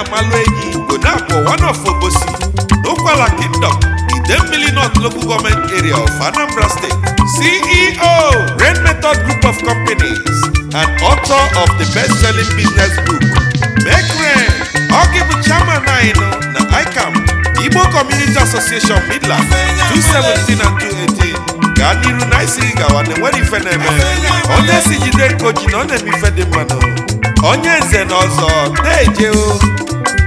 amalụ enyi Godakpo one of Obosi N'Ukwala Kingdom Idemmili North Local Government Area of Anambra State CEO Rain Method Group of Companies and author of the best-selling business book Make Rain Ọ gị bụ chairman na ICAM Igbo Community Association Midland 217 and 218 Ganiru n'iru na isi gawa na enwere ife na-eme onye si jide na ọ na onye nze na oh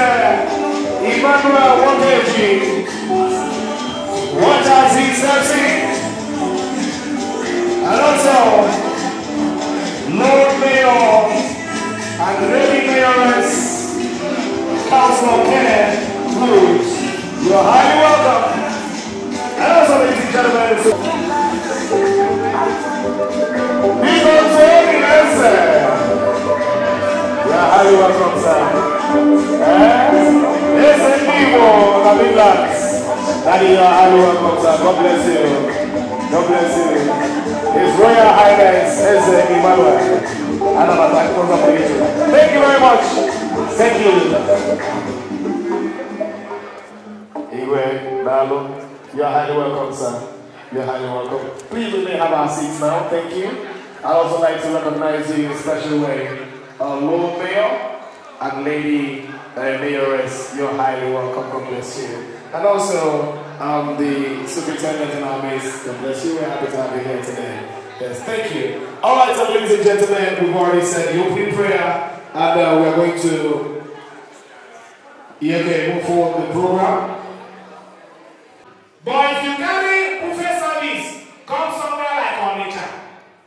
uh, Emmanuel Womeji. What has he accepted? And also, Lord Mayor and Lady Mayoress, Councilor Kenneth Cruz. You are highly welcome. And also, ladies and gentlemen, Bishop Tony Nelson. Yeah, how you are from, sir? Eh? Listen, people, the big lads. Daddy, your how you are sir. God bless you. God bless you. His Royal Highness is uh, Emmanuel. And I'm attacking for you. Thank you very much. Thank you. Igwe, Dalo, you're highly welcome, sir. You're highly welcome. Please, we may have our seats now. Thank you. I'd also like to recognize you in a special way. uh, Lord Mayor and Lady uh, Mayoress, you're highly welcome. God bless you. And also um, the Superintendent and our midst. God bless you. We're happy to have you here today. Yes, thank you. All right, so ladies and gentlemen, we've already said the opening prayer, and uh, we're going to yeah, okay, move forward the program. But if you carry buffet service, come somewhere like on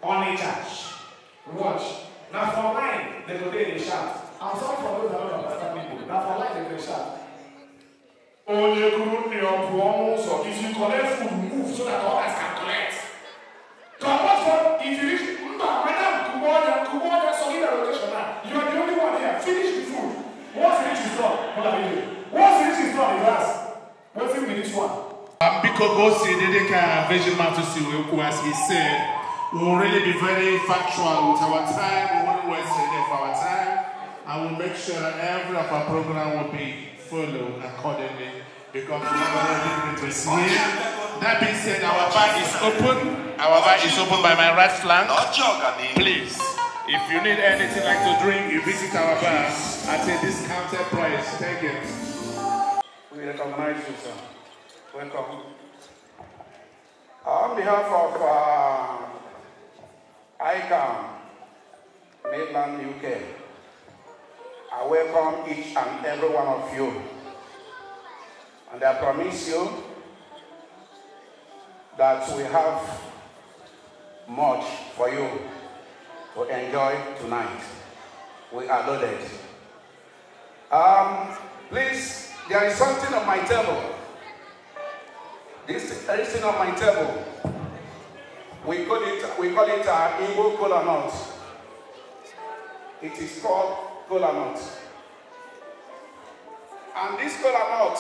on a church, a church, Watch. Now for line, they go there and shout. I'm sorry for those that don't understand people. Now for line, they go shout. Onye guru ni ọ̀pọ̀ ọmọ sọ, if you collect food, move so that others can collect. Comot from, if you reach, mba, madam, kubo ọjà, kubo ọjà, sọ ní ìdàrọ̀ tẹ̀sán náà. You are the only one here, finish the food. Once reach is done, hold on a minute. Once reach is done, you ask, wetin be this one? Biko Gosi, Dedeka Vejima Tusi, Wekuas, he said, We'll really be very factual with our time. We won't waste any of our time. And we'll make sure that every of our program will be followed accordingly because we have already been to that being said, our bar is open. Our bar is open by my right flank. Please, if you need anything like to drink, you visit our bar at a discounted price. Thank you. We recognize you, sir. Welcome. On behalf of uh, come, mainland UK, I welcome each and every one of you. And I promise you that we have much for you to enjoy tonight. We are loaded. Um, please, there is something on my table. This something on my table. We call it, we call it uh, Igbo cola nut. It is called cola nut. And this cola nut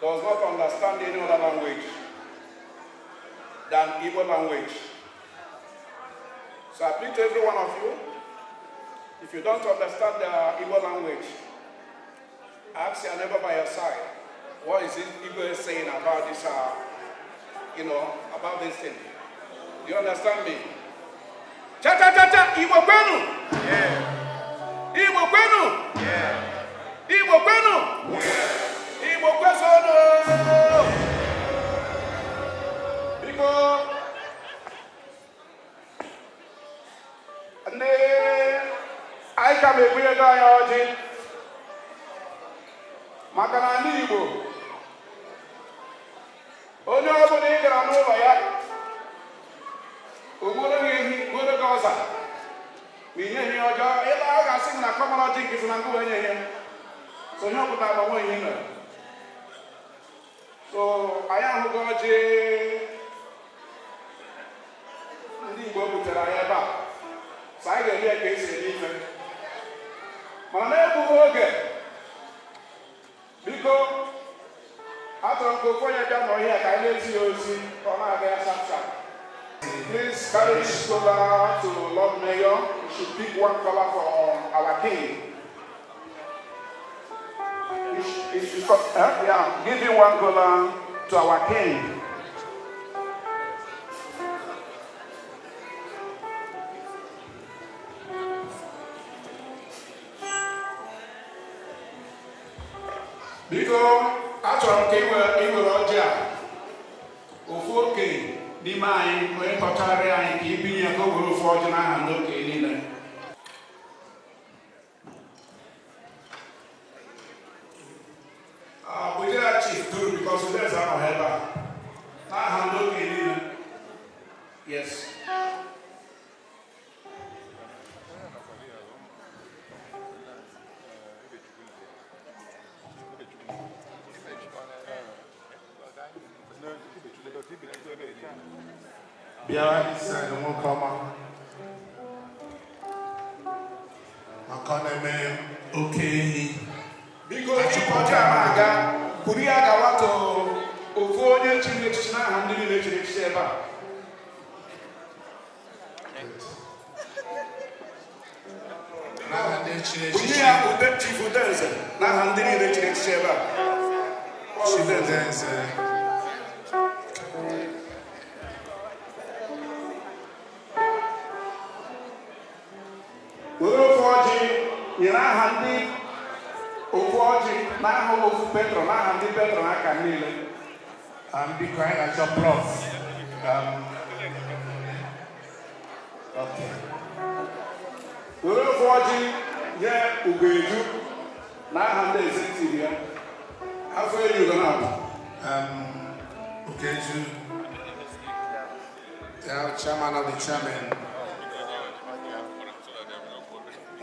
does not understand any other language than Igbo language. So I plead to every one of you, if you don't understand the Igbo language, ask your neighbor by your side, what is it Igbo saying about this, uh, you know, about this thing. You understand me? Cha cha cha cha. Iwo kwenu. Yeah. Iwo kwenu. Yeah. Iwo kwenu. Yeah. Igbo kwesono. Biko. Ndị anyị ka m ebunye ego anyị ọjị maka na ndị Igbo onye ọ bụla ị gara n'ụlọ ya ugboro gị ehi ugboro gị ọza ma inye ihe ọjọọ ịla ọ ga-asị m na kọmarọji nke si na ngụ onye ihe so onye ọbụla agbanwe ihe mere so anyị ahụghị ọjị ndị igbo butere anyị ebe a so anyị ga-eri ya ka esi eri ife mana na-egbughị oge biko atọrọ nke okwu onye bịa n'ọhịa ka anyị ezi ya ozi ka ọ na-aga ya sapsap Please carry this to Lord Mayor. You should pick one color for our king. You should, you should, uh, yeah, give him one color to our king. Because achọrọ m ka ị were ọjị a ofu okenye n'ime anyị onye kọcharị anyị ka ibinye ya ka o were ofu ọjị n'aha n'okenye niile Abujira chief duru because there's an Oheba. That hand okay, Yes. biara bi sɛ ne ho kama maka ne me okehi bikoachukwukyamaaga kuri aga wato ofu onye ekyiri n'echichi n'aha ndị niile echiri echichi ebe a Onye ya bụ Chifu Denze n'aha ndị niile echiri echichi ebe a. Chifu Denze. nyere aha ndị ofu ọjị na aha ofu petro na aha ndị petro n'aka niile um, biko anyị na-achọ plọs um, were ofu ọjị nye ugoeju na aha ndị ezitiri ya afọ eyi ugo na-abụ um, Okeju, okay, the chairman of the chairman,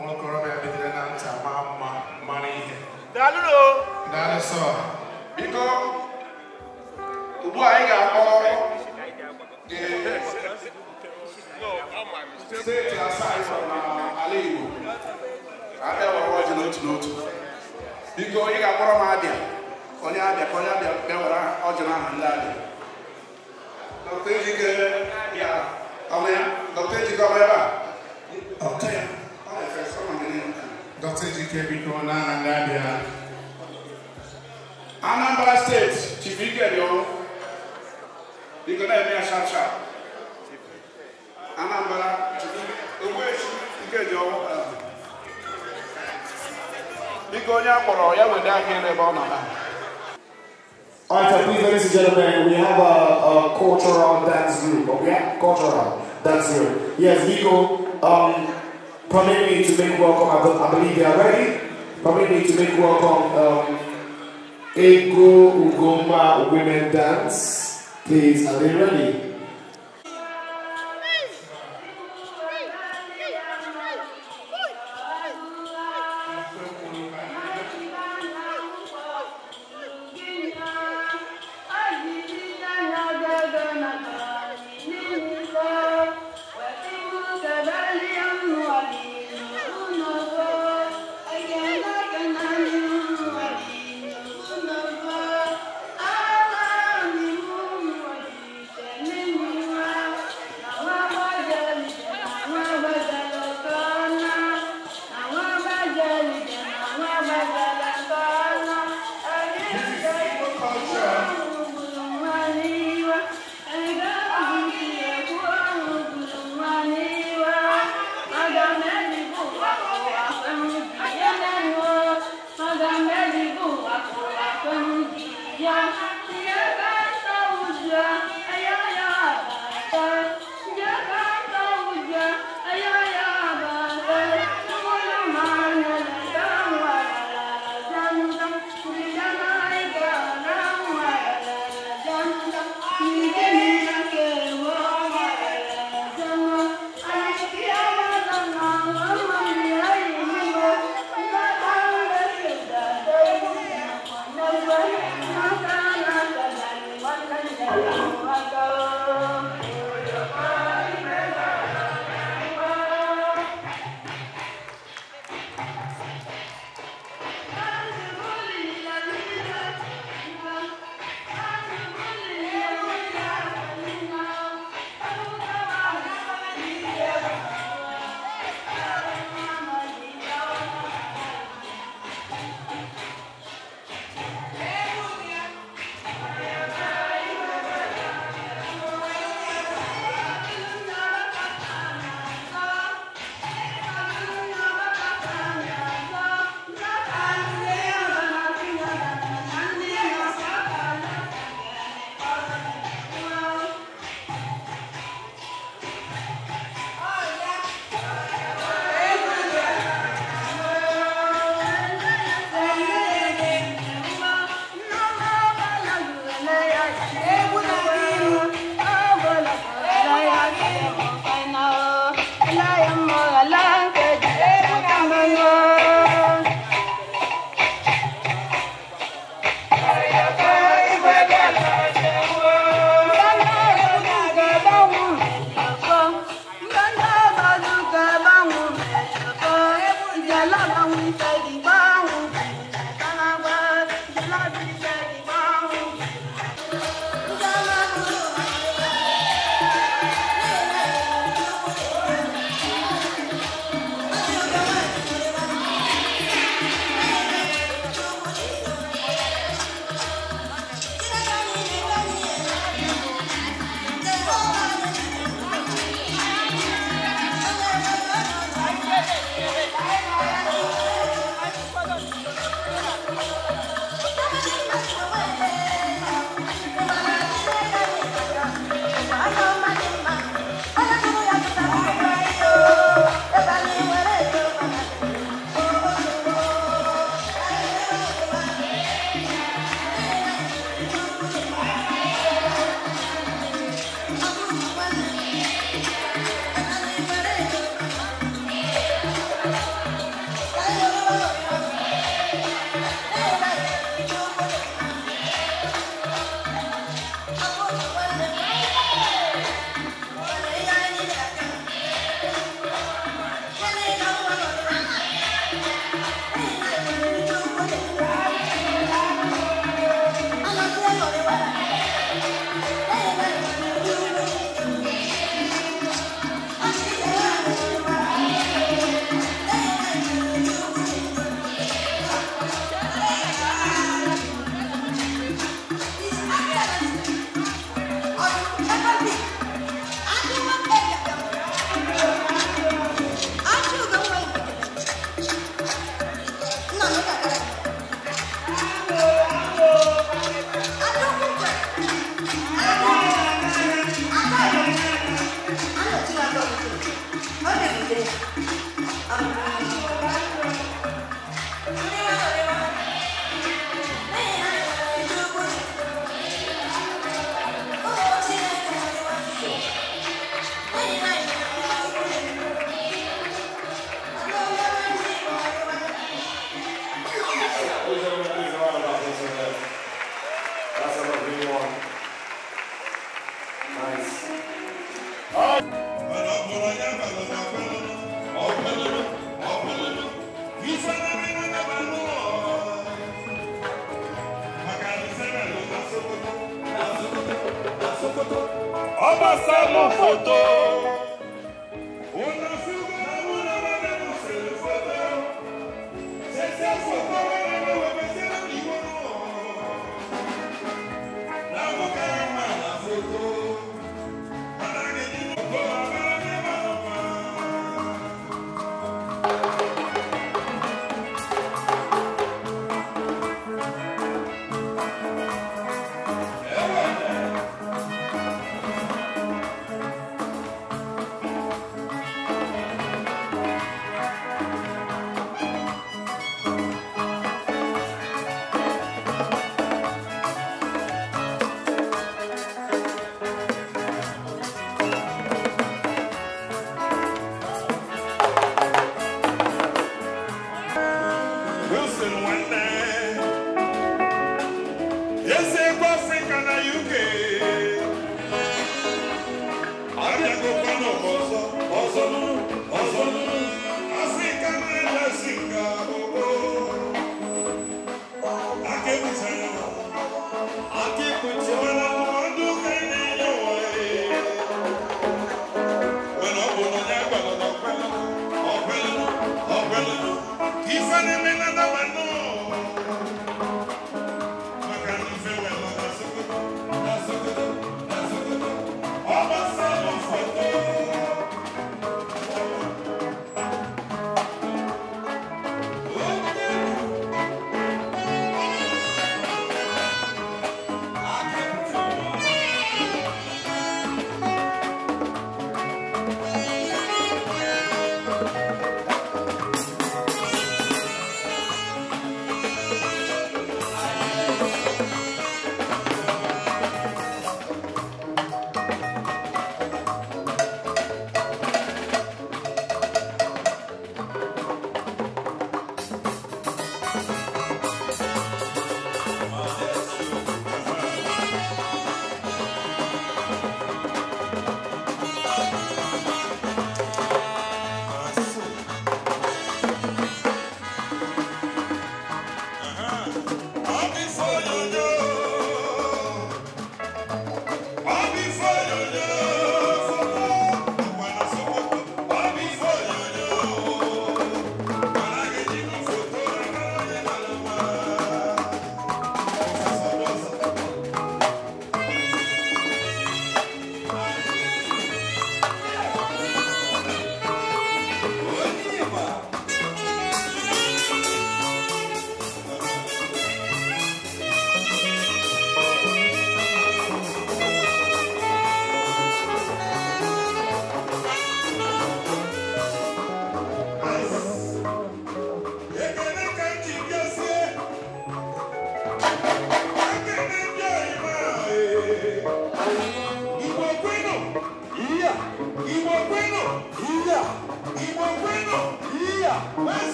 nwaokorobịa bidoro na ncha maa mma mara ihe daalụ sọ biko ugbu a anyị ga-akpọ steeti asaa ịfọ n'ala Igbo abịa were ọjị n'otu n'otu biko ị ga-akpọrọ m abịa onye abịa ka onye abịa bịa were ọjị n'aha ndị abịa Dr. Ejike bịara ọmụ ya Dr. Ejike ọmụ ebe a ọka ya Dr. Ejike Biko na Anambra State, Chibike yo. Anambra, Chibike, yo. All right, please, ladies and gentlemen, we have a, a cultural dance group, okay? Cultural dance group. Yes, Nico, um, Permit me to make welcome, I, believe they are ready. Permit me to make welcome um, Ego Ugoma Women Dance. Please, are they ready? 呀。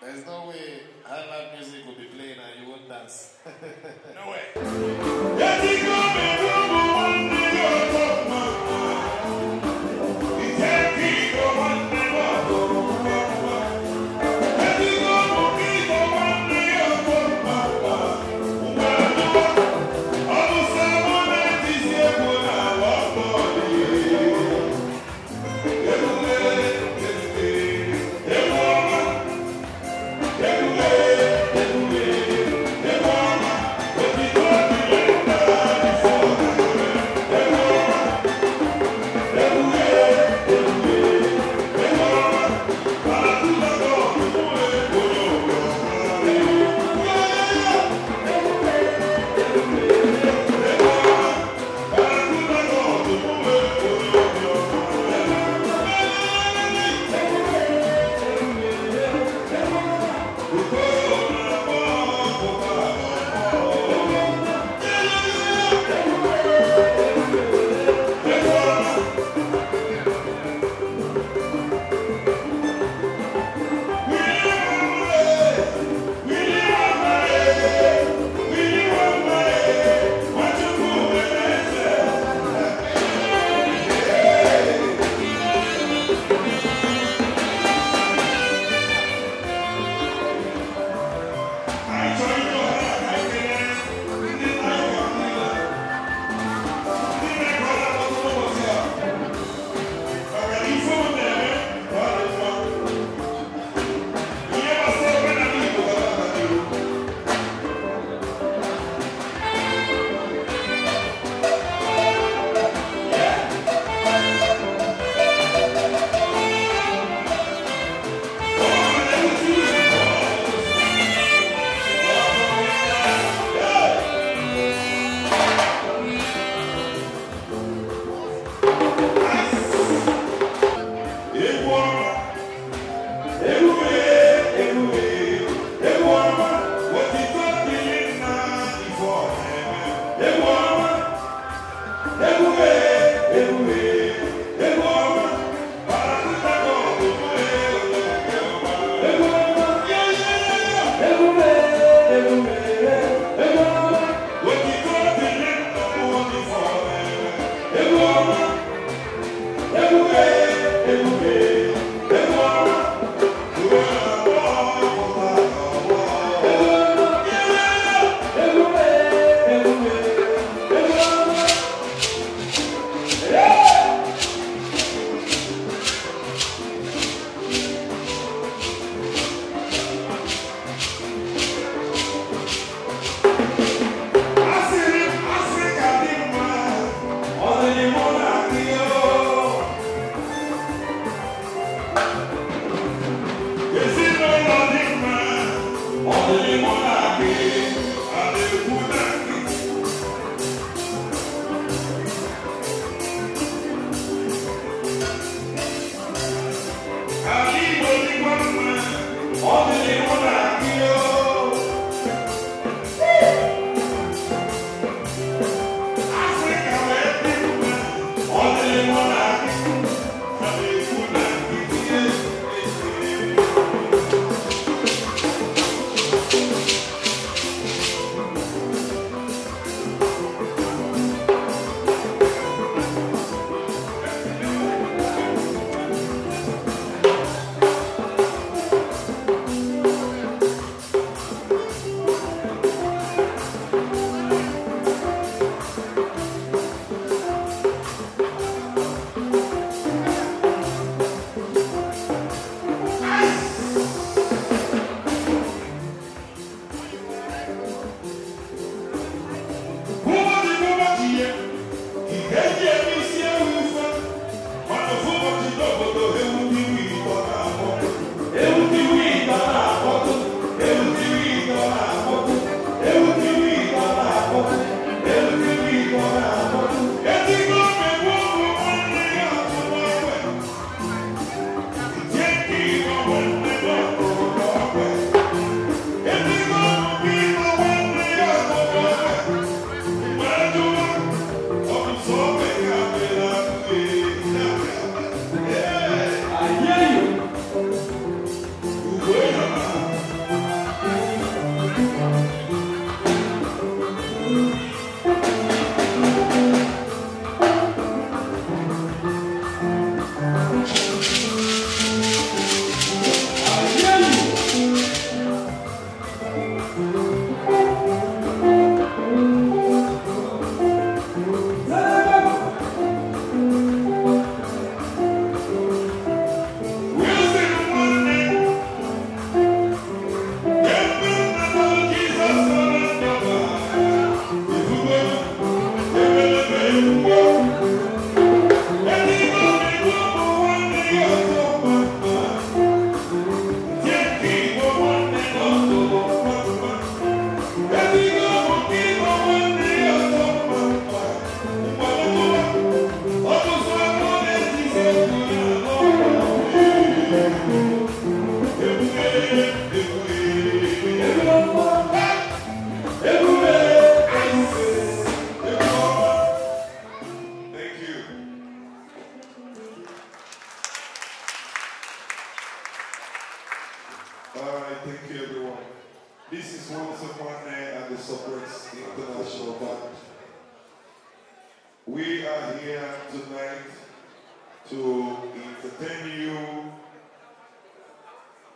There's no way Highland music will be playing and you won't dance. no way.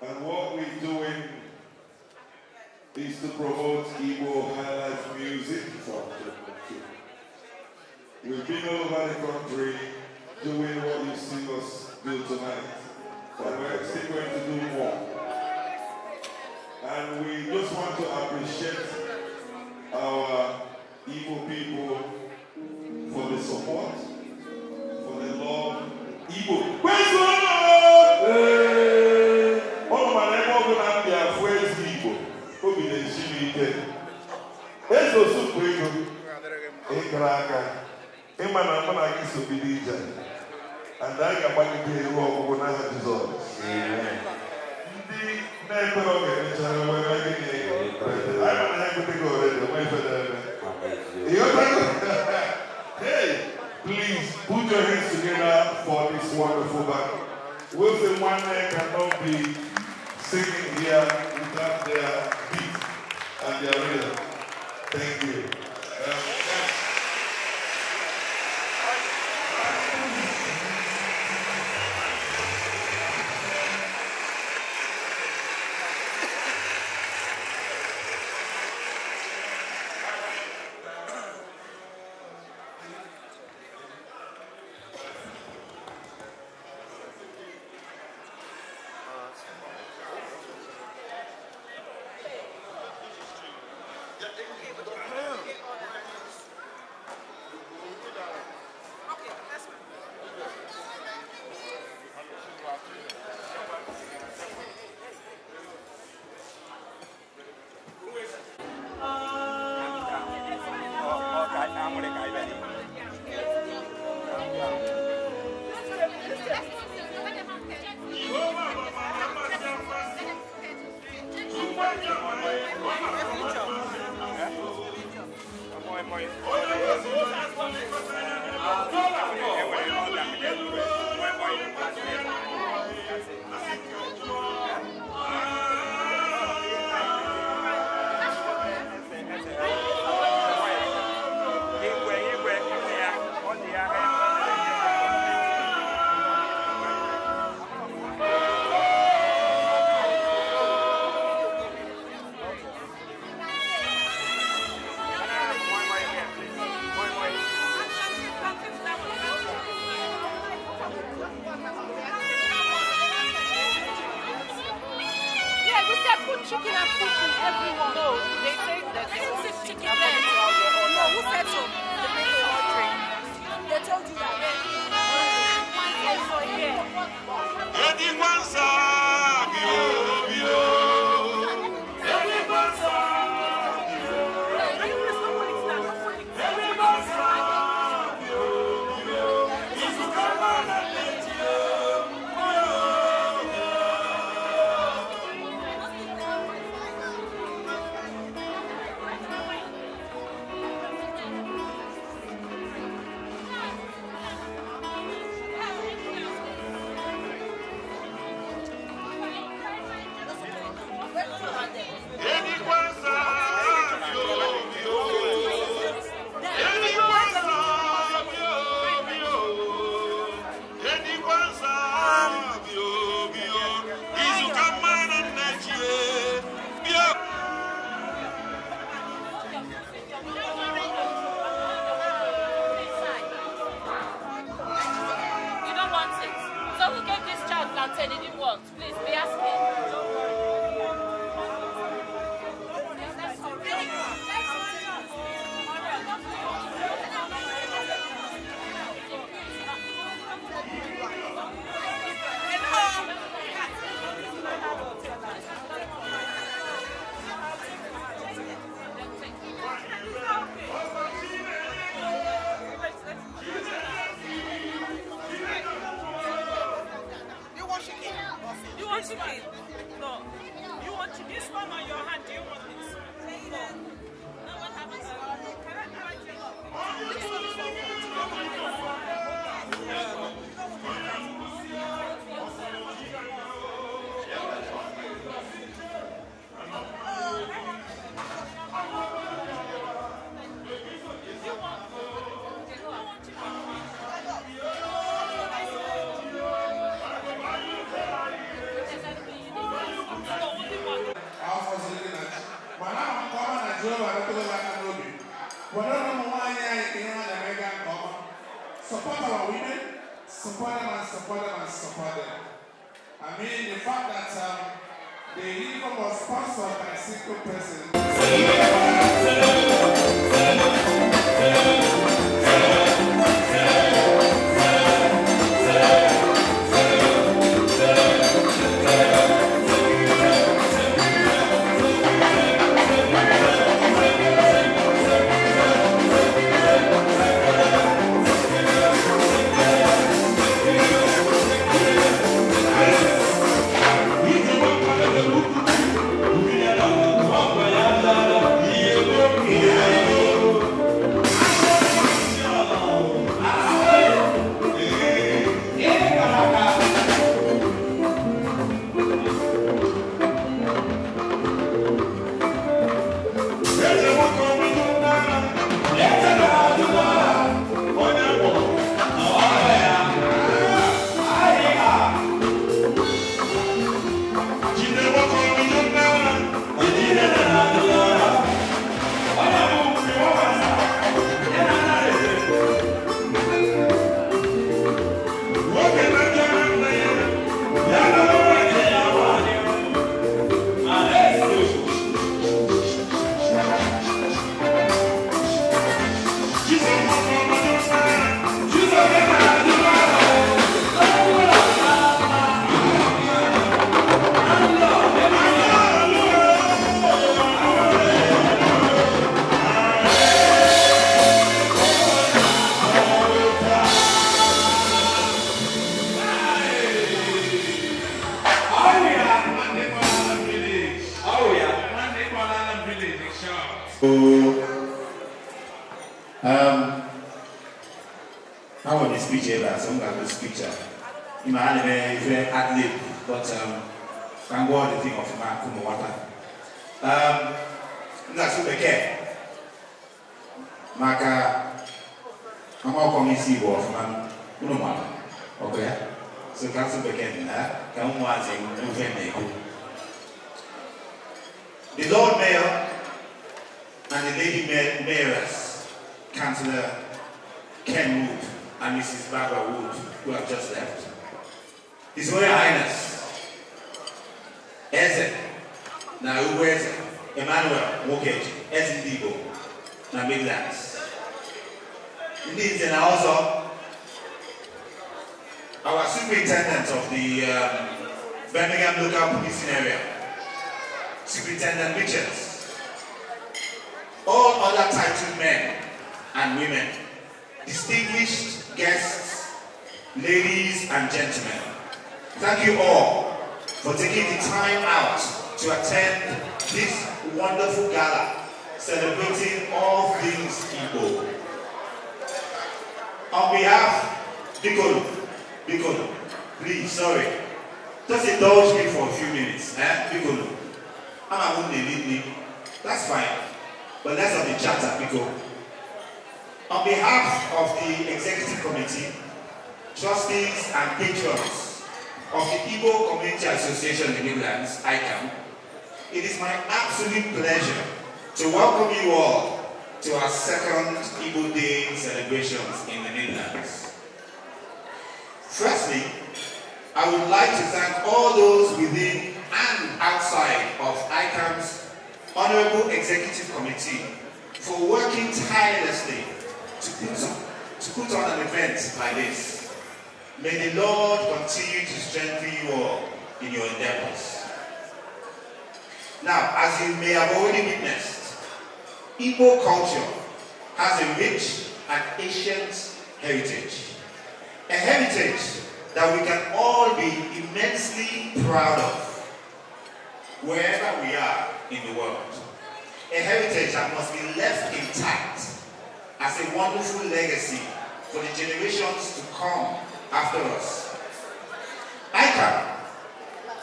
And what we're doing is to promote Igbo high music We've been all over the country doing what you see us do tonight. And we're still going to do more. And we just want to appreciate our Igbo people for the support, for the love. Igbo. Where's the ike eze osupụ ego ịkara aka ịma na mụ na gị ije ga ga-agbagide ọgwụgwụ n'aha Jizọs ndị o ọ na ya gote gị eme hey please put your hands together for this wonderful battle Wilson one man cannot be singing here without their Thank you.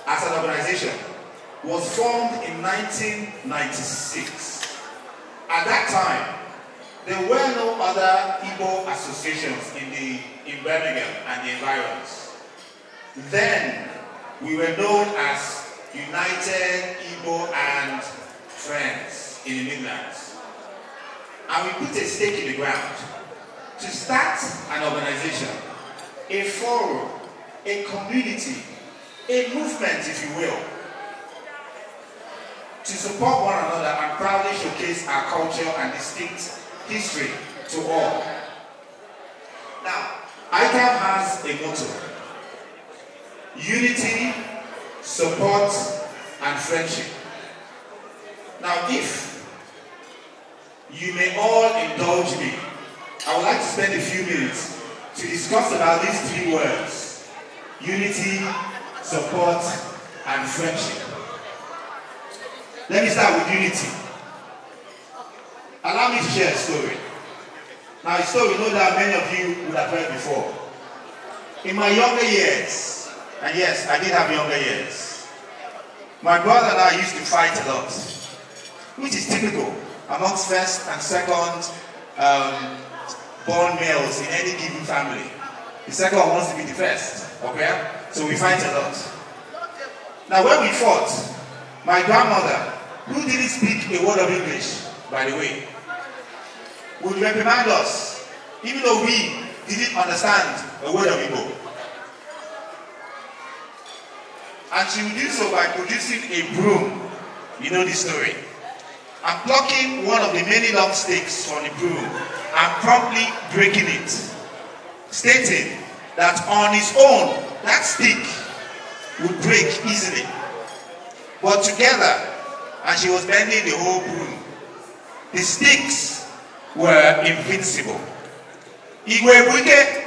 as an organization was formed in 1996. At that time, there were no other Igbo associations in, the, in Birmingham and the environs. Then, we were known as United Igbo and Friends in the Midlands. And we put a stake in the ground to start an organization, a forum, a community a movement, if you will, to support one another and proudly showcase our culture and distinct history to all. Now, ICAM has a motto, unity, support, and friendship. Now, if you may all indulge me, I would like to spend a few minutes to discuss about these three words, unity, support, and friendship. Let me start with unity. Allow me to share a story. Now, a story you know that many of you would have heard before. In my younger years, and yes, I did have younger years, my brother and I used to fight a lot, which is typical amongst first and second um, born males in any given family. The second wants to be the first, okay? So we fight a lot. Now, when we fought, my grandmother, who didn't speak a word of English, by the way, would reprimand us, even though we didn't understand a word of Igbo. And she would do so by producing a broom. You know this story. And plucking one of the many long sticks from the broom and promptly breaking it, stating that on its own, that stick would break easily. But together, as she was bending the whole broom, the sticks were invincible. Igwebuke,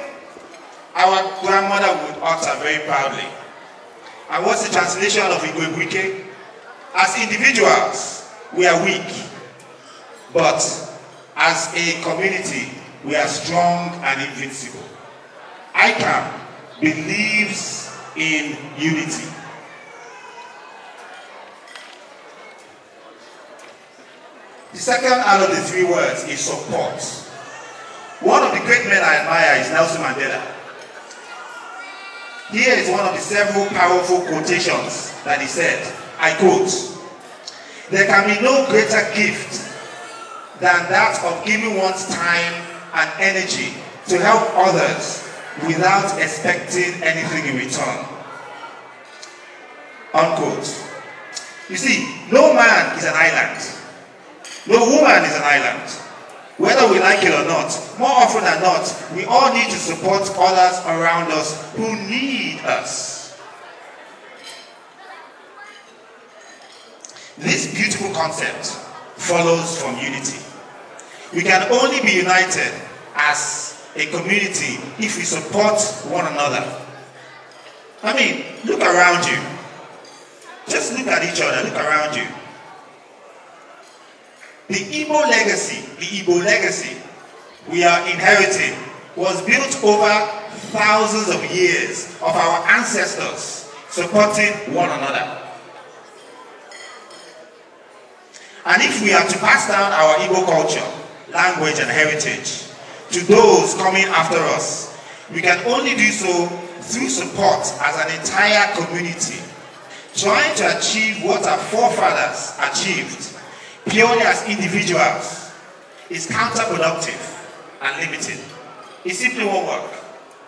our grandmother would utter very proudly. And what's the translation of Igwebuke? As individuals, we are weak, but as a community, we are strong and invincible. ICAP believes in unity. The second out of the three words is support. One of the great men I admire is Nelson Mandela. Here is one of the several powerful quotations that he said. I quote, There can be no greater gift than that of giving one's time and energy to help others without expecting anything in return. Unquote. You see, no man is an island. No woman is an island. Whether we like it or not, more often than not, we all need to support others around us who need us. This beautiful concept follows from unity. We can only be united as a community if we support one another. I mean, look around you. Just look at each other, look around you. The Igbo legacy, the Igbo legacy we are inheriting was built over thousands of years of our ancestors supporting one another. And if we are to pass down our Igbo culture, language and heritage, to those coming after us. We can only do so through support as an entire community, trying to achieve what our forefathers achieved purely as individuals is counterproductive and limited. It simply won't work.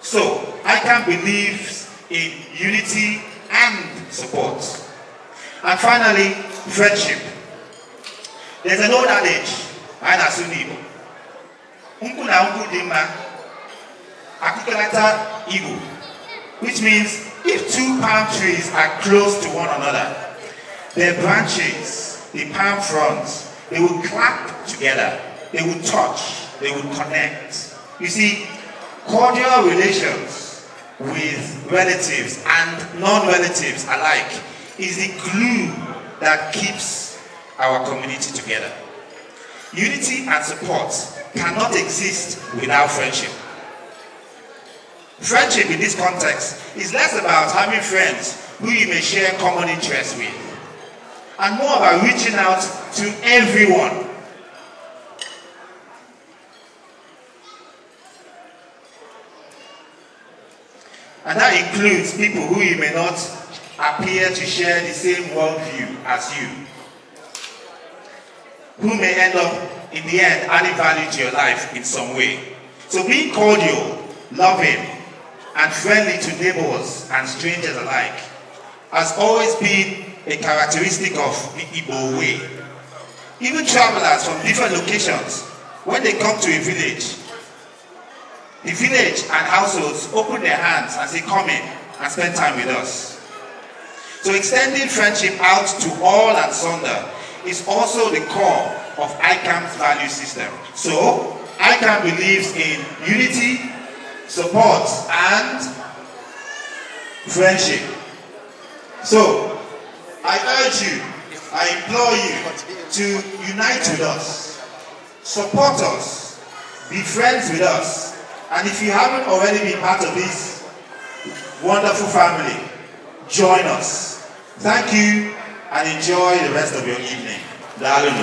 So, I can believe in unity and support. And finally, friendship. There's an old adage, and as soon Nkwu na Nkwu dị mma which means if two palm trees are close to one another their branches the palm fronds they will clap together they will touch they will connect you see cordial relations with relatives and non-relatives alike is the glue that keeps our community together. Unity and support cannot exist without friendship. Friendship in this context is less about having friends who you may share common interests with and more about reaching out to everyone. And that includes people who you may not appear to share the same worldview as you, who may end up in the end adding value to your life in some way. So being cordial, loving, and friendly to neighbors and strangers alike has always been a characteristic of the Igbo way. Even travelers from different locations, when they come to a village, the village and households open their hands and say, come in and spend time with us. So extending friendship out to all and sunder is also the core of ICAM's value system. So, ICAM believes in unity, support, and friendship. So, I urge you, I implore you to unite with us, support us, be friends with us, and if you haven't already been part of this wonderful family, join us. Thank you and enjoy the rest of your evening. Darling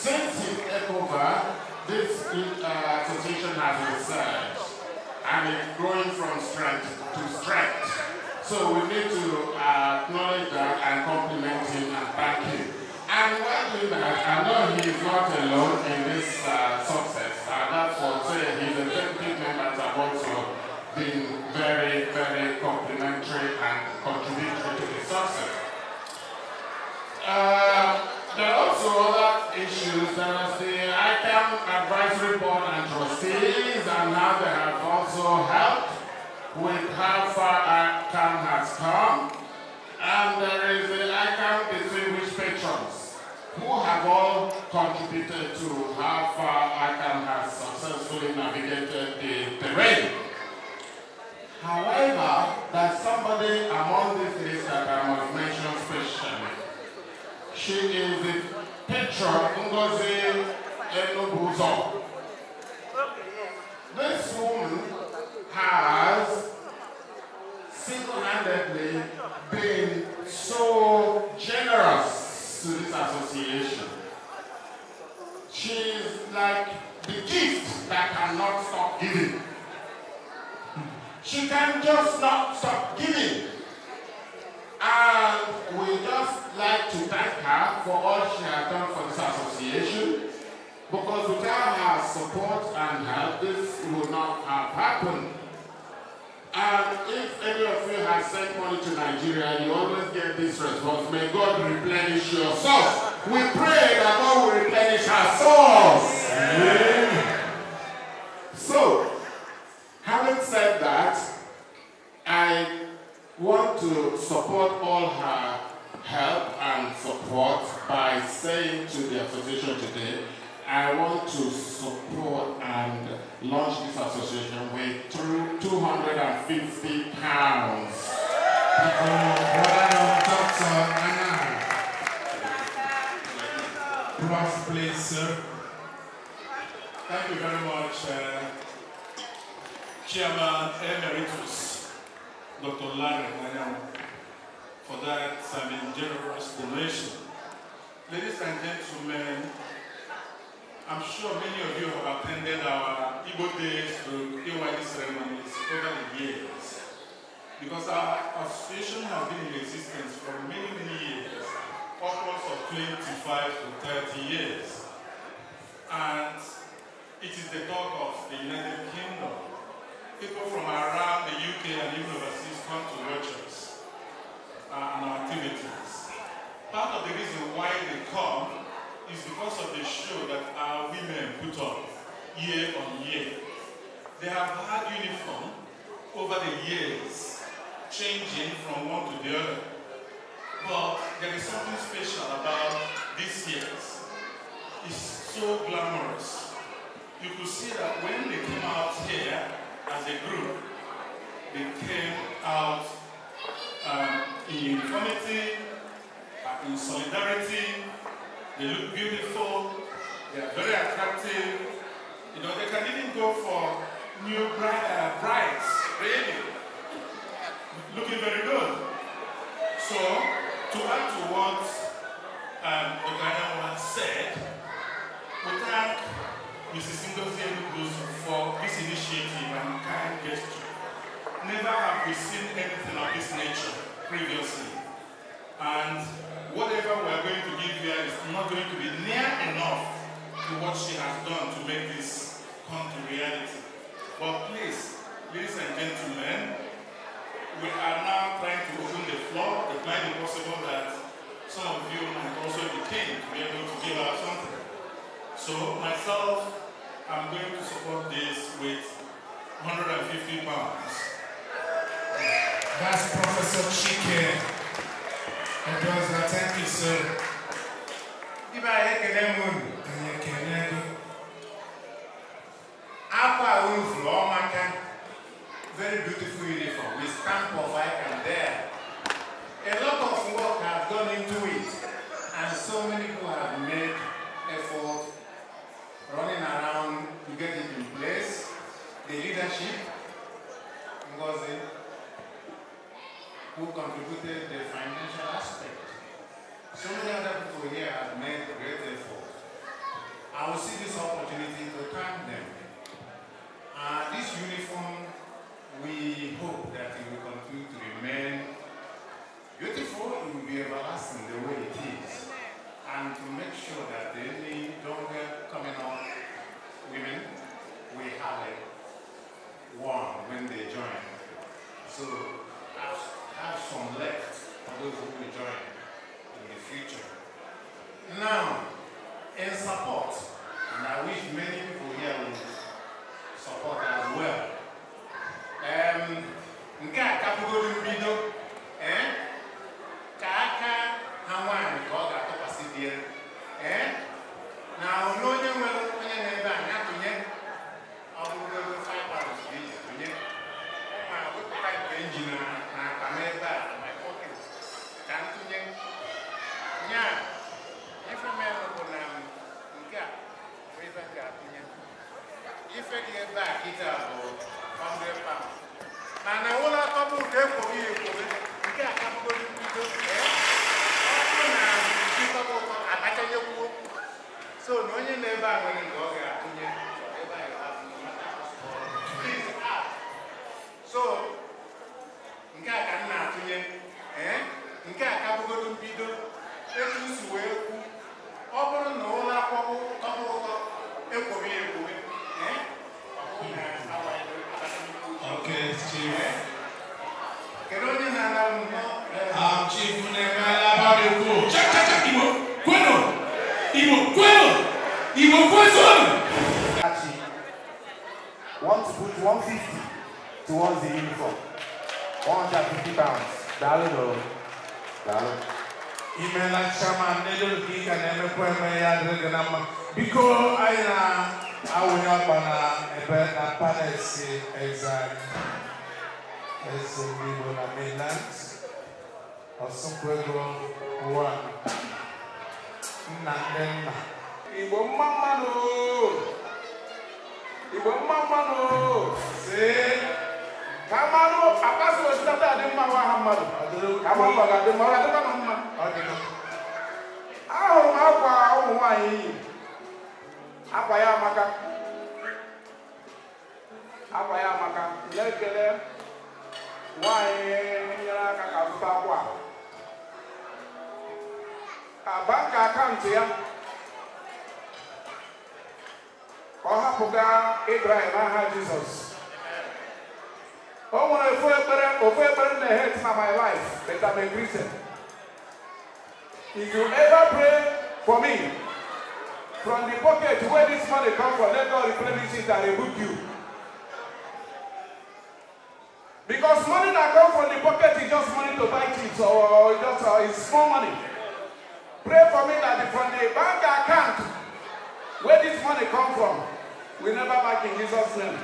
Since he took over, this uh, association has emerged, uh, and it's growing from strength to strength. So we need to uh, acknowledge that and compliment him and thank him. And while doing that, I know he is not alone in this uh, success. And uh, that's for saying his executive members have also been very, very complimentary and contributory to the success. Uh, issues, I can ICAM Advisory Board and trustees, and now they have also helped with how far ICAM has come. And there is the ICAM distinguished patrons who have all contributed to how far ICAM has successfully navigated the terrain. However, there's somebody among these that I must mention specially. She is the Petra Ngozi Enubuzo. This woman has single-handedly been so generous to this association. She's like the gift that cannot stop giving. She can just not stop giving. And we just like to thank her for all she has done for this association, because without her support and help, this would not have happened. And if any of you have sent money to Nigeria, you always get this response. May God replenish your source. We pray that God will replenish our source. Yeah. So, having said that, I want to support all her help and support by saying to the association today, I want to support and launch this association with through 250 pounds. Doctor Anna, Prof, please, sir. Thank you very much, uh, Chairman Emeritus. Dr. Larry for that some generous donation. Ladies and gentlemen, I'm sure many of you have attended our Igbo Days AYD ceremonies over the years because our association has been in existence for many, many years, upwards of 25 to 30 years. And it is the talk of the United Kingdom. People from around the UK and even overseas come to workshops uh, and our activities. Part of the reason why they come is because of the show that our women put on year on year. They have had uniform over the years, changing from one to the other. But there is something special about this year's. It's so glamorous. You could see that when they came out here as a group, they came out um, in uniformity, uh, in solidarity. They look beautiful. They are very attractive. You know, they can even go for new bride, uh, brides, really. Looking very good. So, to add to what um, the said, we thank Mrs. Singleton for this initiative and kind gesture. Never have we seen anything of this nature previously. And whatever we're going to give here is not going to be near enough to what she has done to make this come to reality. But please, ladies and gentlemen, we are now trying to open the floor. It might be possible that some of you might also be keen to be able to give out something. So myself, I'm going to support this with 150 pounds. That's Professor Chike. Edoza, thank you, sir. Ibe anyị ekele m unu, anyị ekele gị. Akwa unu furu Very beautiful uniform with stamp of icon there. A lot of work has gone into it, and so many people have made effort running around to get it in place. The leadership, Ngozi, who contributed the financial aspect. So many other people here have made great effort. I will see this opportunity to thank them. Uh, this uniform, we hope that it will continue to remain beautiful, it will be everlasting the way it is. And to make sure that any younger coming up women, we have a one when they join. So, have some left for those who will join in the future. Now, in support, and I wish many people here will support as well. Um, nke a kapụgoro mbido eh? ka aka ha nwaanyị ka ọ ga-atụkwasị eh? Now no. ife dị ebe a kịta bụ 100 pounds mana ụlọ akọbụ nke ekwobi ekwobi nke a kabụgoro mbido ọkụ na jikọba so na onye nọ ebe a nwere nke ọ ga so nke a ka m na-atụnye eh? nke a kabụgoro mbido etu si wee kwu who wants the uniform? 150 pounds. Daalụ dọrọ. Daalụ. Imela chama n'elu nke ị ga na-emekwa eme ya Because I na I will anyị a better akpa na ebe a panels exile. Eze Igbo na mainland. Ọsụnkwego ụwa. Nna not nna. Igbo Mama no. Igbo Mama no. Say kamanu akaso wɔ sitata adi ma wa hamadu kamanu wa gade ma wa gade ma ma apa? m akwa ụmụ ya maka? Apa ya maka? na-ekele nwaanyị nyere aka ka zụta akwa ka banka akaụntụ ya ka ọ hapụ gaa ịdraị ọ nwere ofu ekpere ofu ekpere na het na my life but I'm a Christian if you ever pray for me from the pocket where this money come from let God replenish it and rebook you because money that come from the pocket is just money to buy things or just uh, it's small money pray for me that from the bank account where this money come from we never back in Jesus name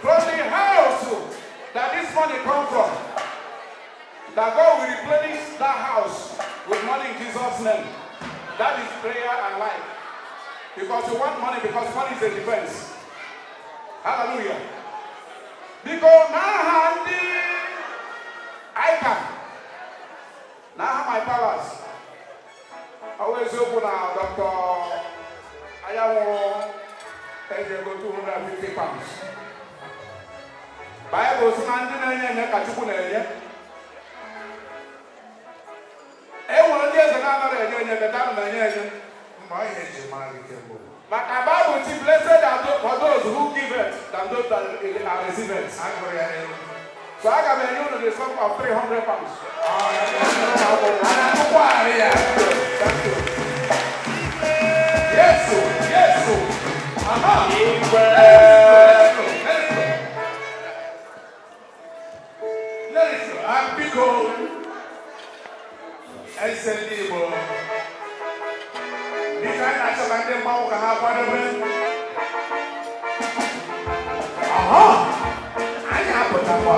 from the house that this money comes from. That God will replenish that house with money in Jesus' name. That is prayer and life. Because you want money, because money is a defense. Hallelujah. Because now handy I can. Now have my powers. Always open now, doctor. I have 250 pounds. Bible sị na ndị na-enye enye ka chukwu na-enye e nwere ndị eze na-anaghị enye enye beta na-enye enye maka baịbụl ti blessed are those who give it than those that are receive it so aga m enye unu the sum of 300 pounds ana akwụkwọ arị ya aha. Biko, ẹsẹ ndị Igbo dịka a na-achọ ka ndị mmanwụ ka ha kwadobe ọhọ anyị apụtakwa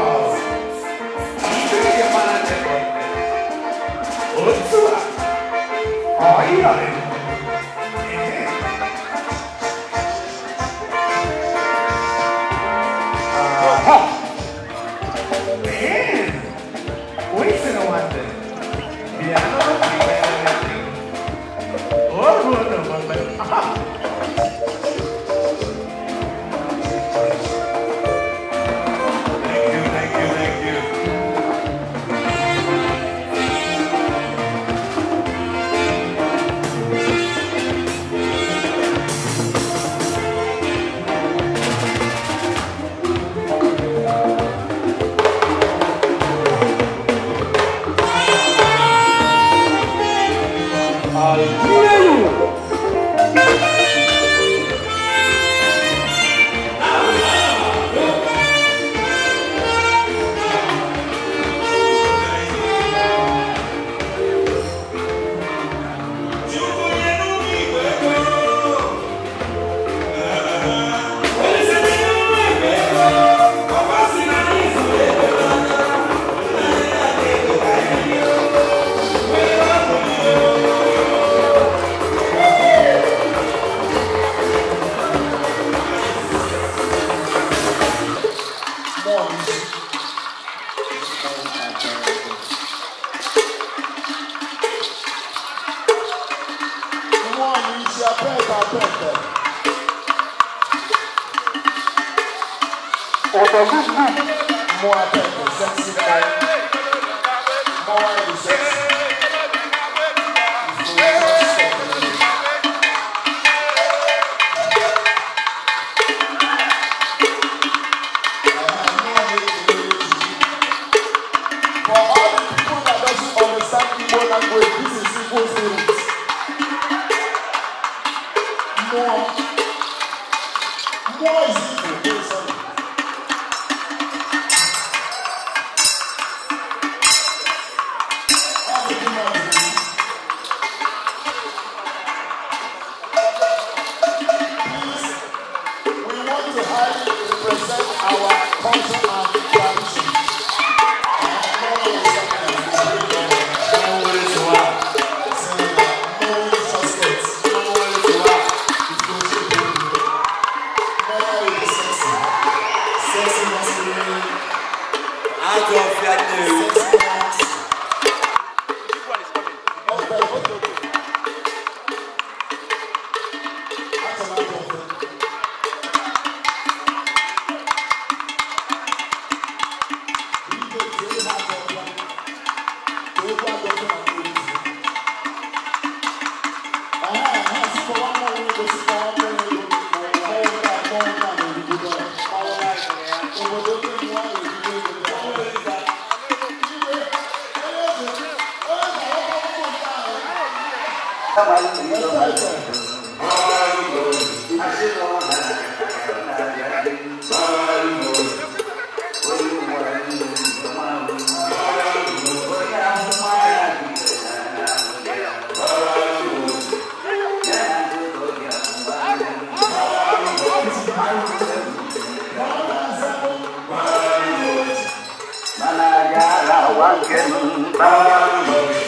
ndị mara ndị otu a ọyị ọrịa you.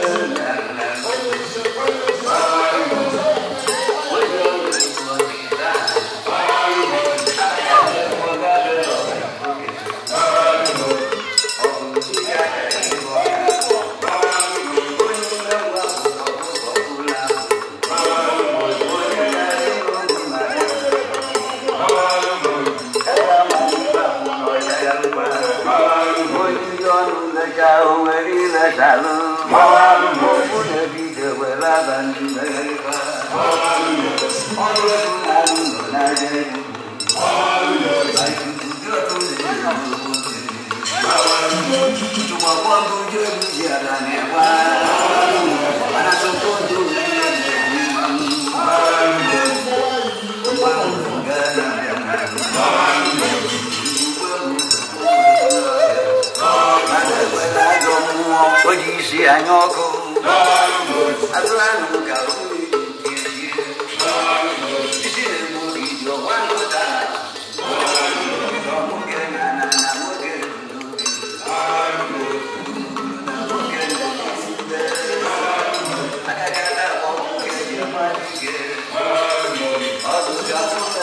I'm Oggi si è noco, a tu è lunga lunga.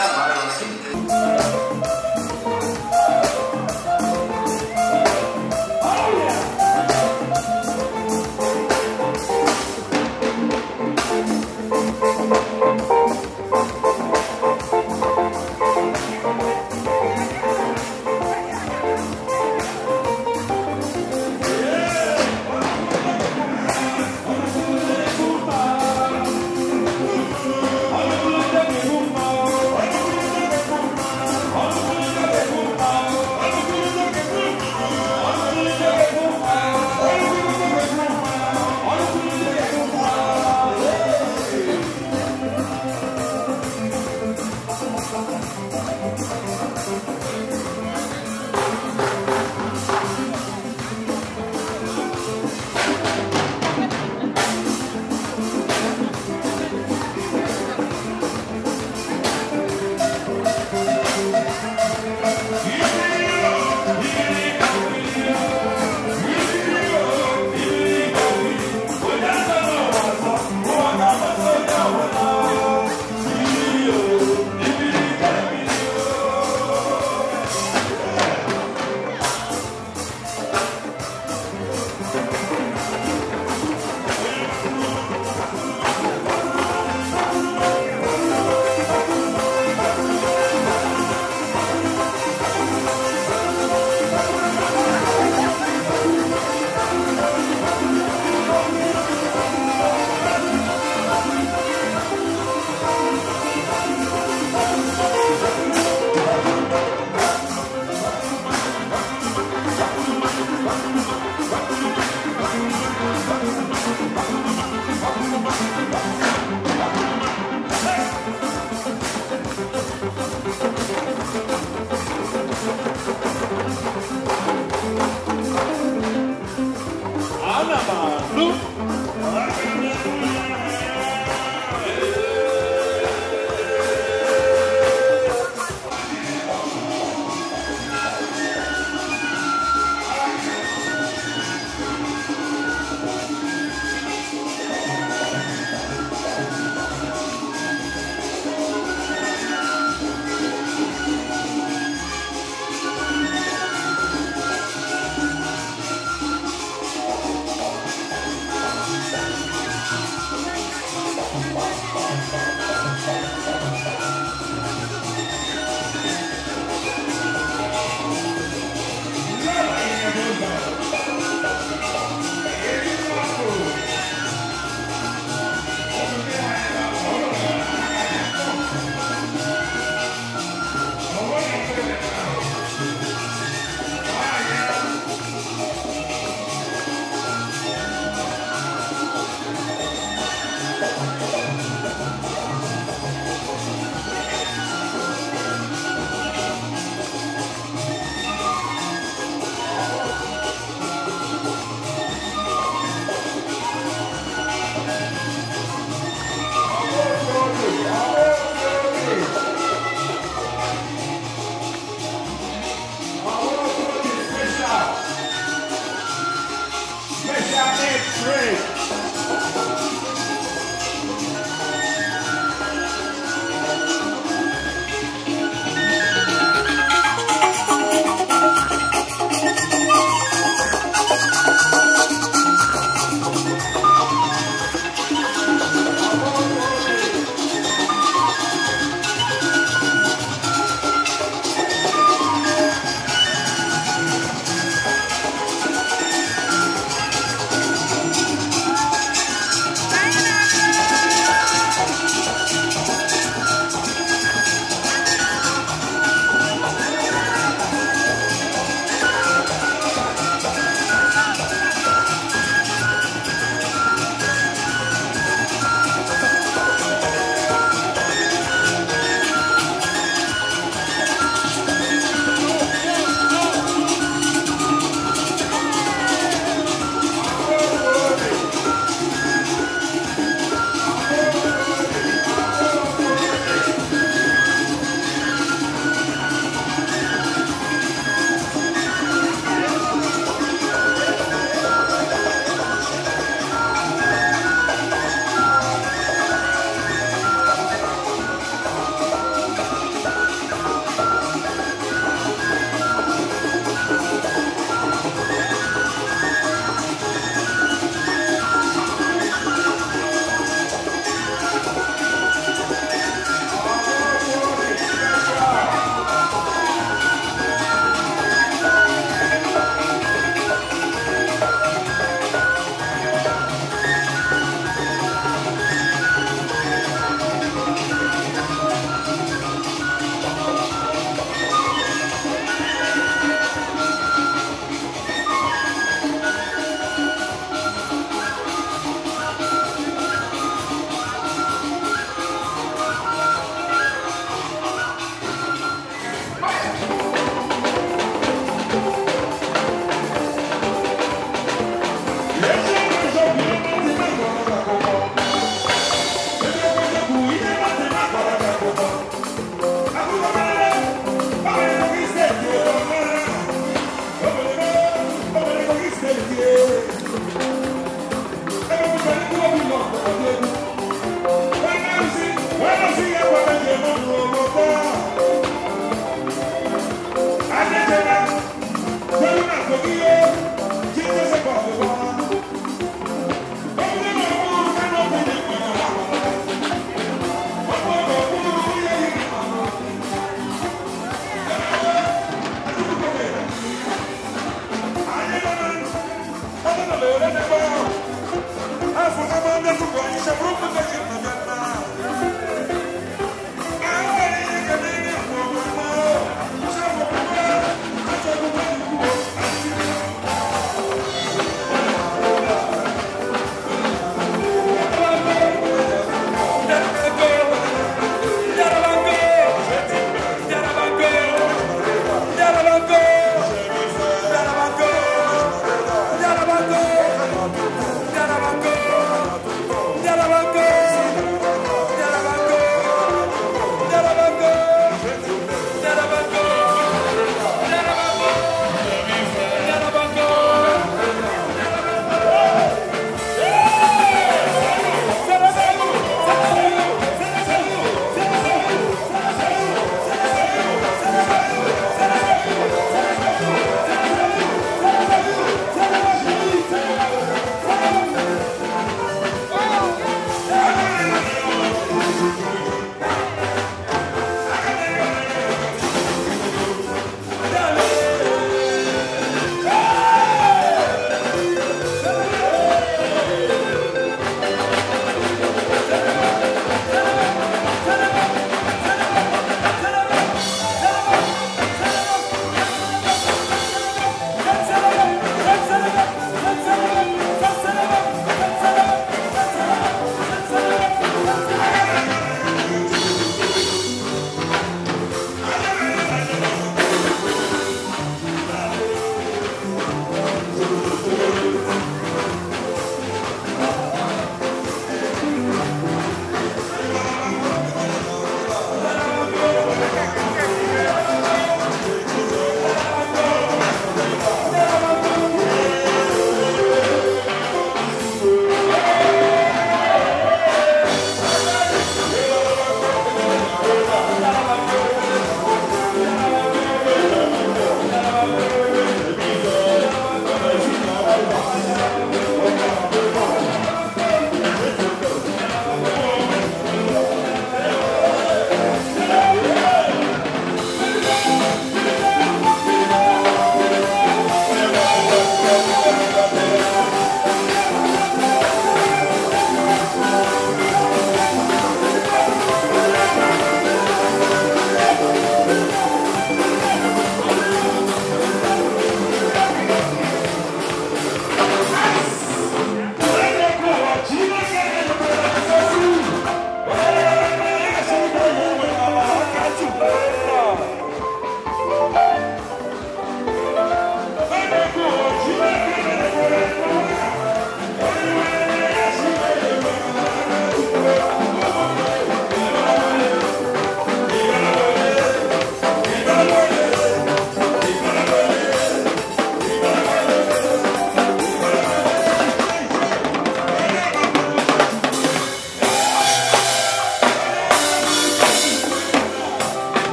が丸を切って。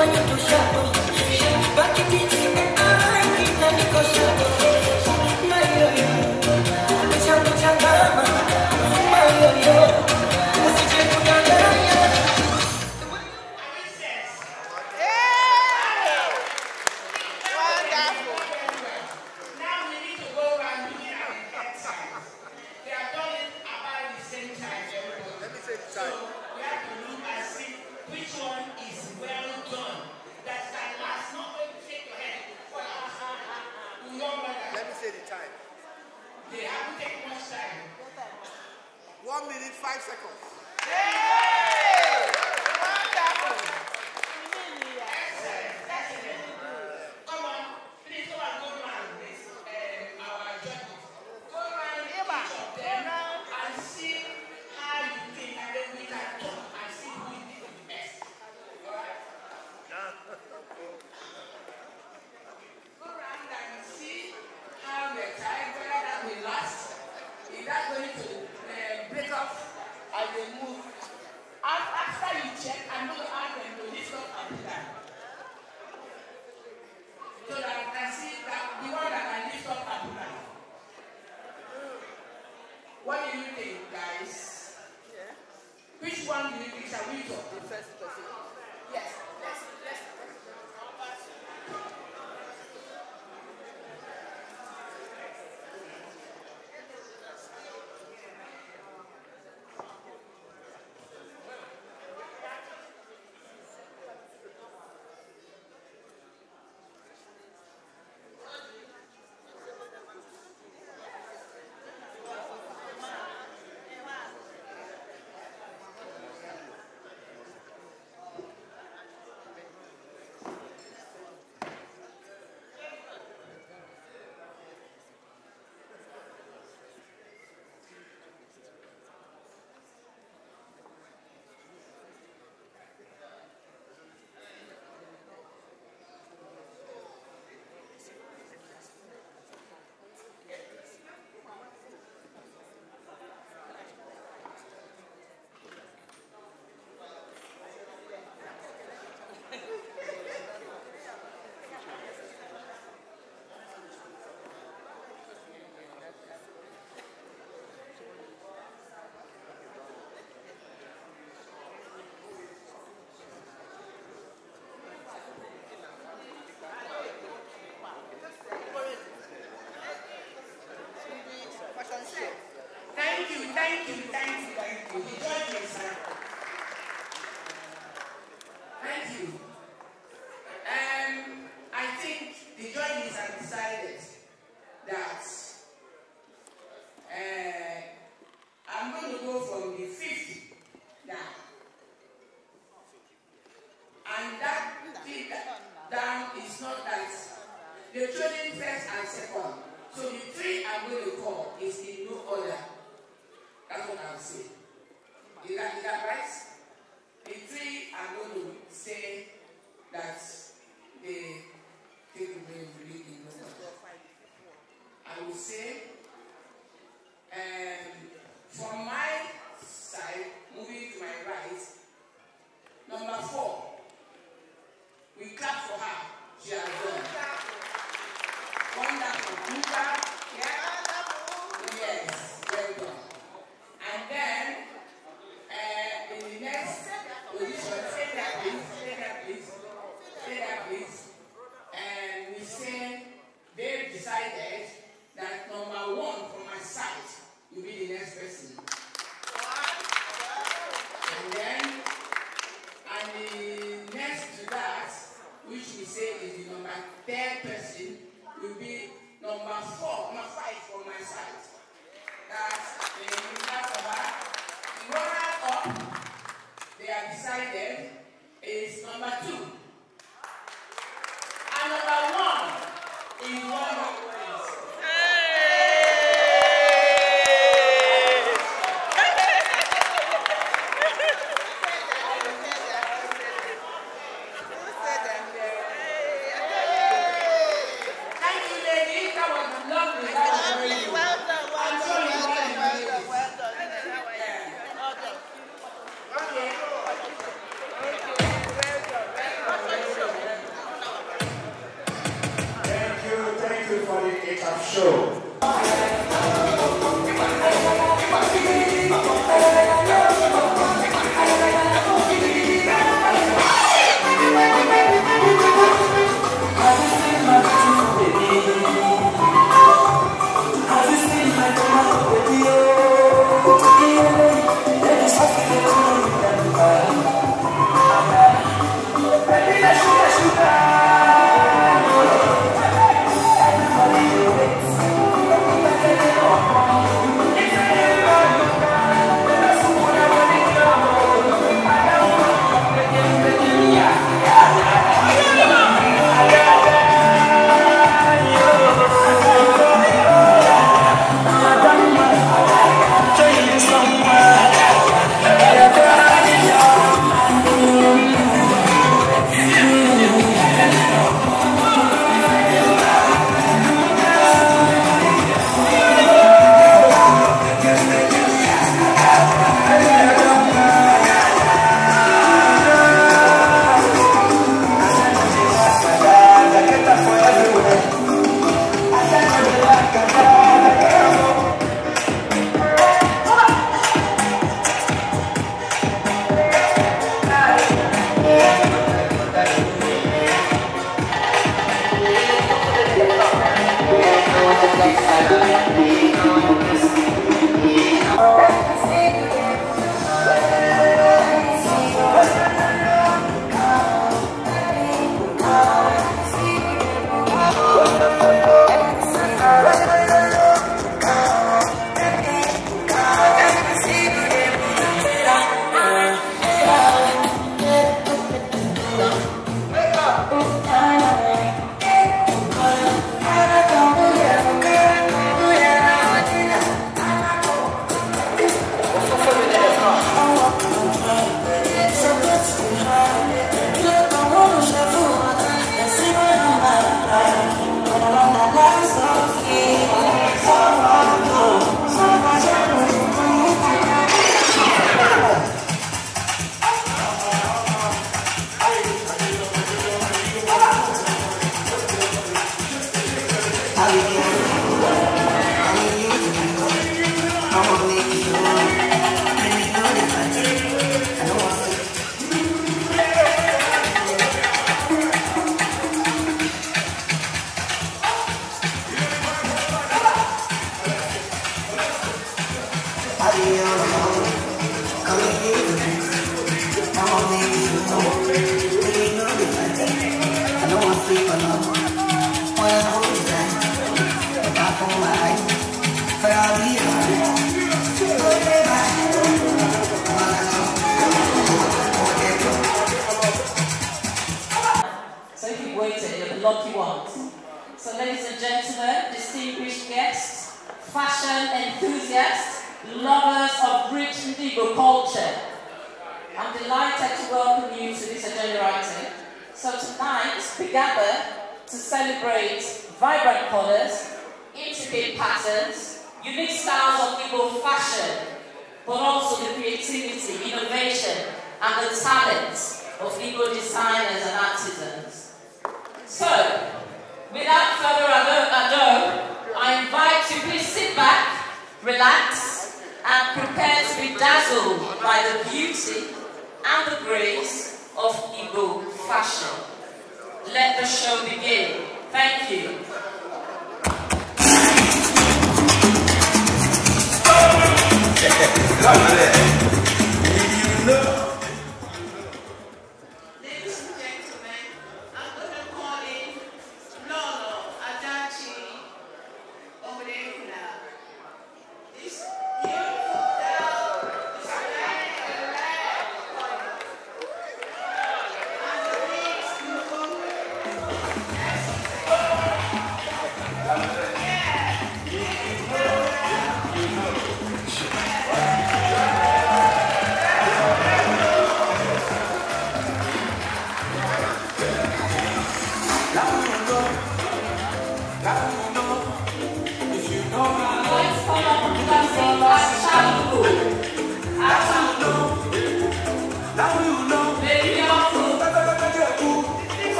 when you do shapo. The training first and second. So the three I'm going to call is in no order. That's what I'm saying. Is that, is that right? The three I'm going to say that they take away really in no order. I will say, um, from my side, moving to my right, number four, we clap for her, she has done. Number two,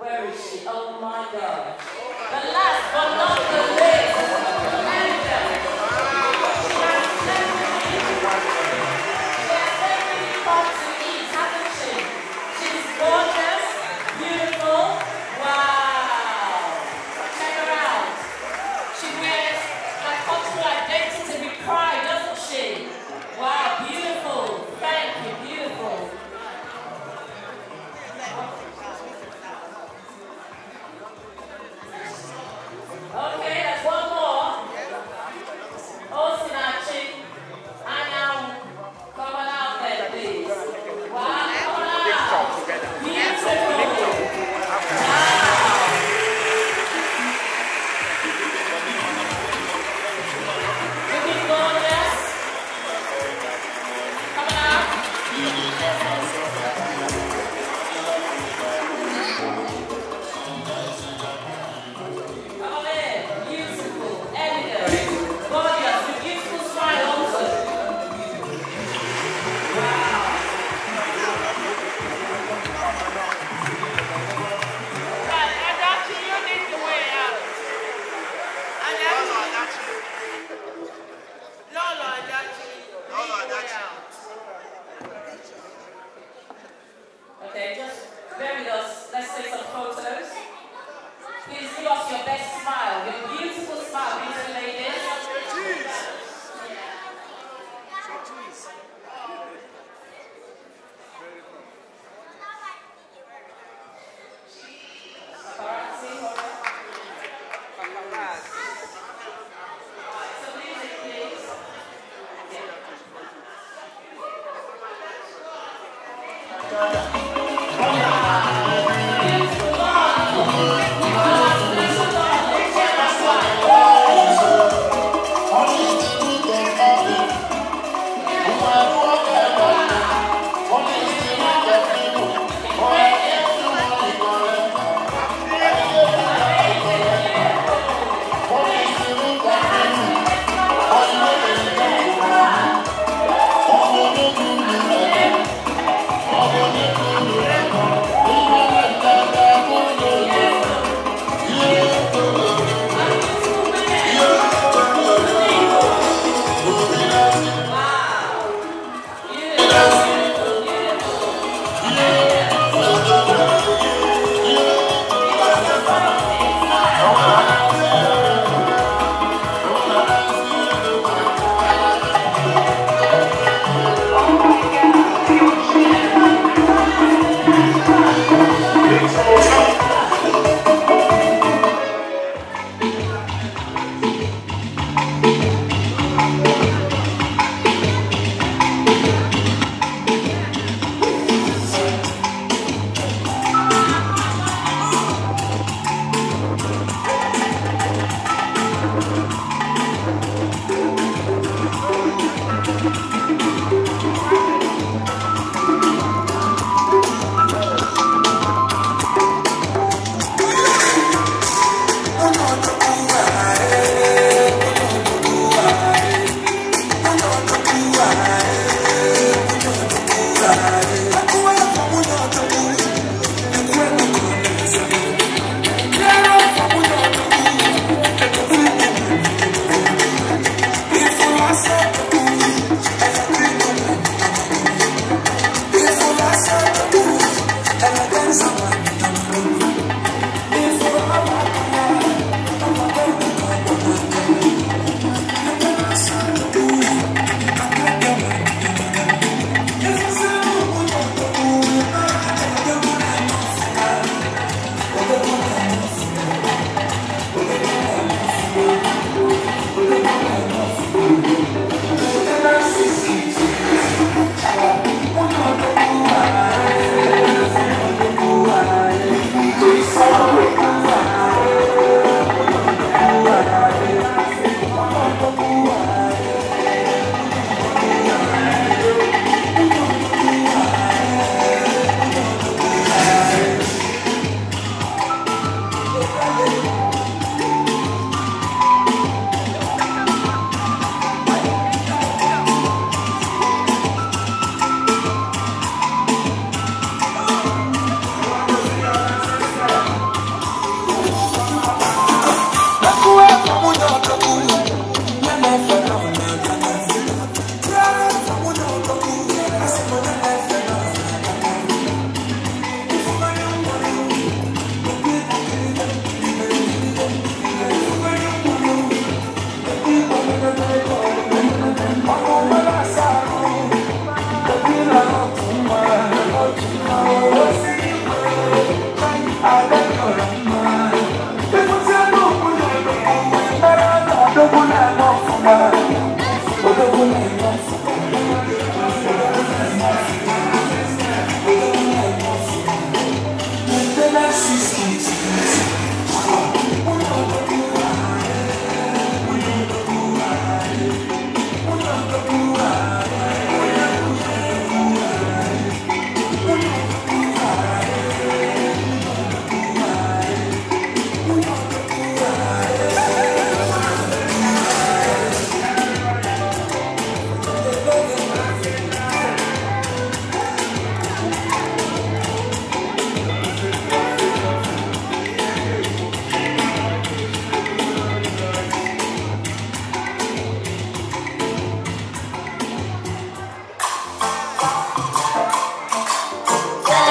Where is she? Oh my God. The last but not the least.